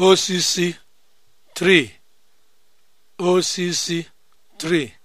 occ 3 occ 3